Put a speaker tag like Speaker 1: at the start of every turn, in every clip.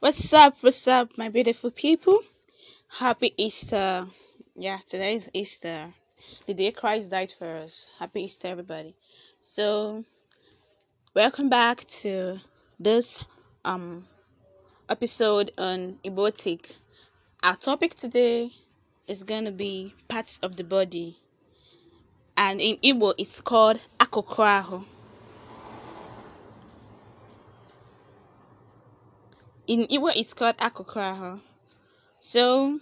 Speaker 1: What's up? What's up, my beautiful people? Happy Easter. Yeah, today is Easter. The day Christ died for us. Happy Easter, everybody. So, welcome back to this um episode on Ebotic. Our topic today is going to be parts of the body. And in Igbo, it's called Akokraho. in Igbo it's called Akokoraho. So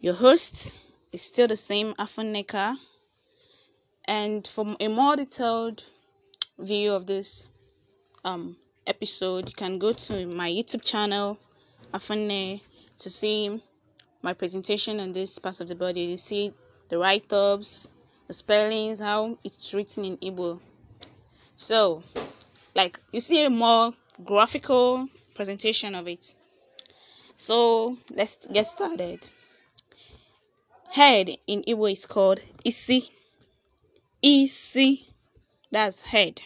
Speaker 1: your host is still the same Afoneka. And for a more detailed view of this um, episode, you can go to my YouTube channel, Afone, to see my presentation on this part of the body. You see the write ups, the spellings, how it's written in Igbo. So, like, you see a more graphical presentation of it. So let's get started. Head in Igbo is called isi. Isi, that's head.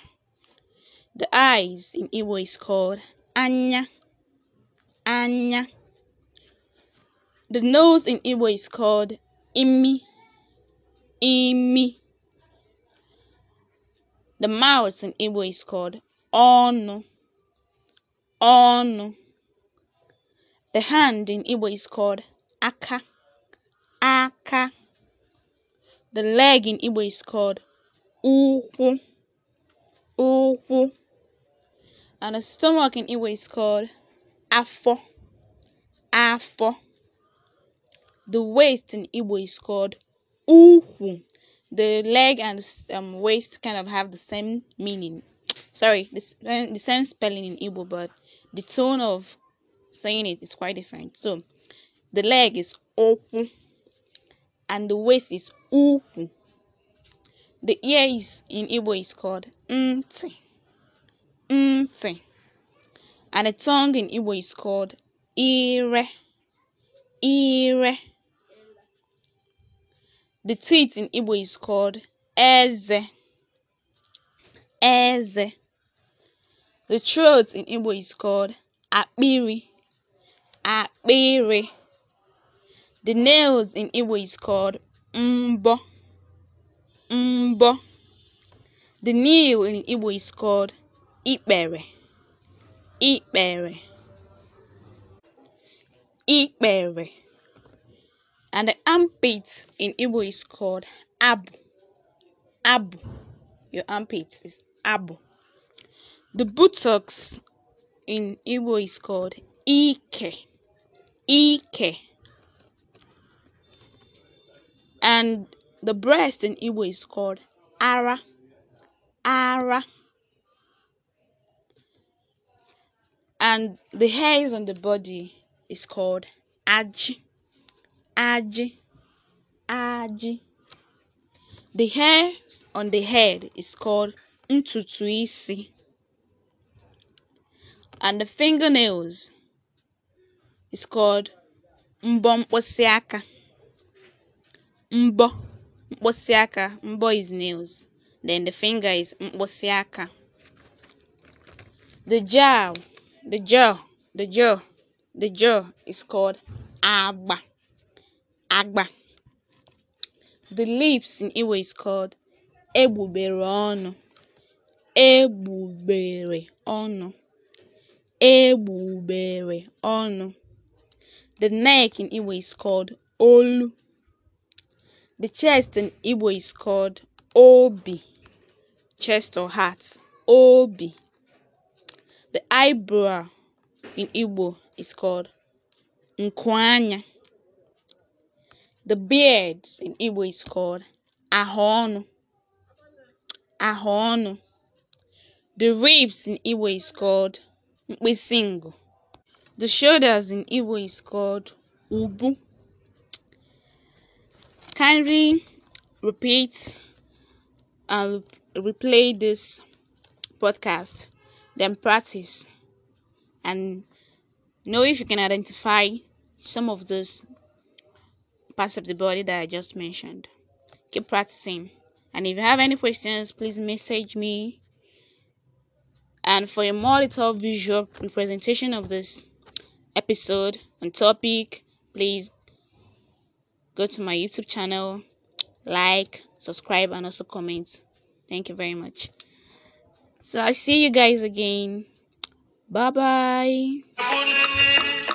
Speaker 1: The eyes in Igbo is called anya. Anya. The nose in Igbo is called imi. Imi. The mouth in Igbo is called ono. ọnụ. The hand in Igbo is called aka, aka. The leg in Igbo is called ukwu, ukwu. And the stomach in Igbo is called afọ, afọ. The waist in Igbo is called ukwu. The leg and um, waist kind of have the same meaning. Sorry, the, the same spelling in Igbo, but the tone of saying it is quite different. So the leg is open and the waist is uku. The ear is in Igbo is called nti. Nti. And the tongue in Igbo is called ire. Ire. The teeth in Igbo is called eze. Eze. The throat in Igbo is called akpiri akpiri, The nails in Igbo is called mbọ (mbọ). The nail in Igbo is called ikpere (ikpere). Ikpere. And the armpit in Igbo is called abụ (abụ). Your armpit is abụ. The buttocks in Igbo is called Ike. Ike. And the breast in Igbo is called Ara. Ara. And the hairs on the body is called Aji. Aji. Aji. The hairs on the head is called Ntutuisi. and the fingernails is called mbọ mkpịsị aka. Mbọ mkpịsị aka. Mbọ is nails. Then the finger is mkpịsị aka. The jaw, the jaw, the jaw, the jaw is called agba. Agba. The lips in iwe is called egbubere ọnụ. Egbubere ọnụ. egbugberụ ọnụ. The neck in Igbo is called olu. The chest in Igbo is called obi. Chest or heart, obi. The eyebrow in Igbo is called nkwanya. The beard in Igbo is called ahonu. Ahonu. The ribs in Igbo is called Mkpisingo. The shoulders in Igbo is called Ubu. Kindly repeat and replay this podcast, then practice and know if you can identify some of those parts of the body that I just mentioned. Keep practicing. And if you have any questions, please message me And for a more detailed visual representation of this episode and topic, please go to my YouTube channel, like, subscribe, and also comment. Thank you very much. So I see you guys again. Bye bye.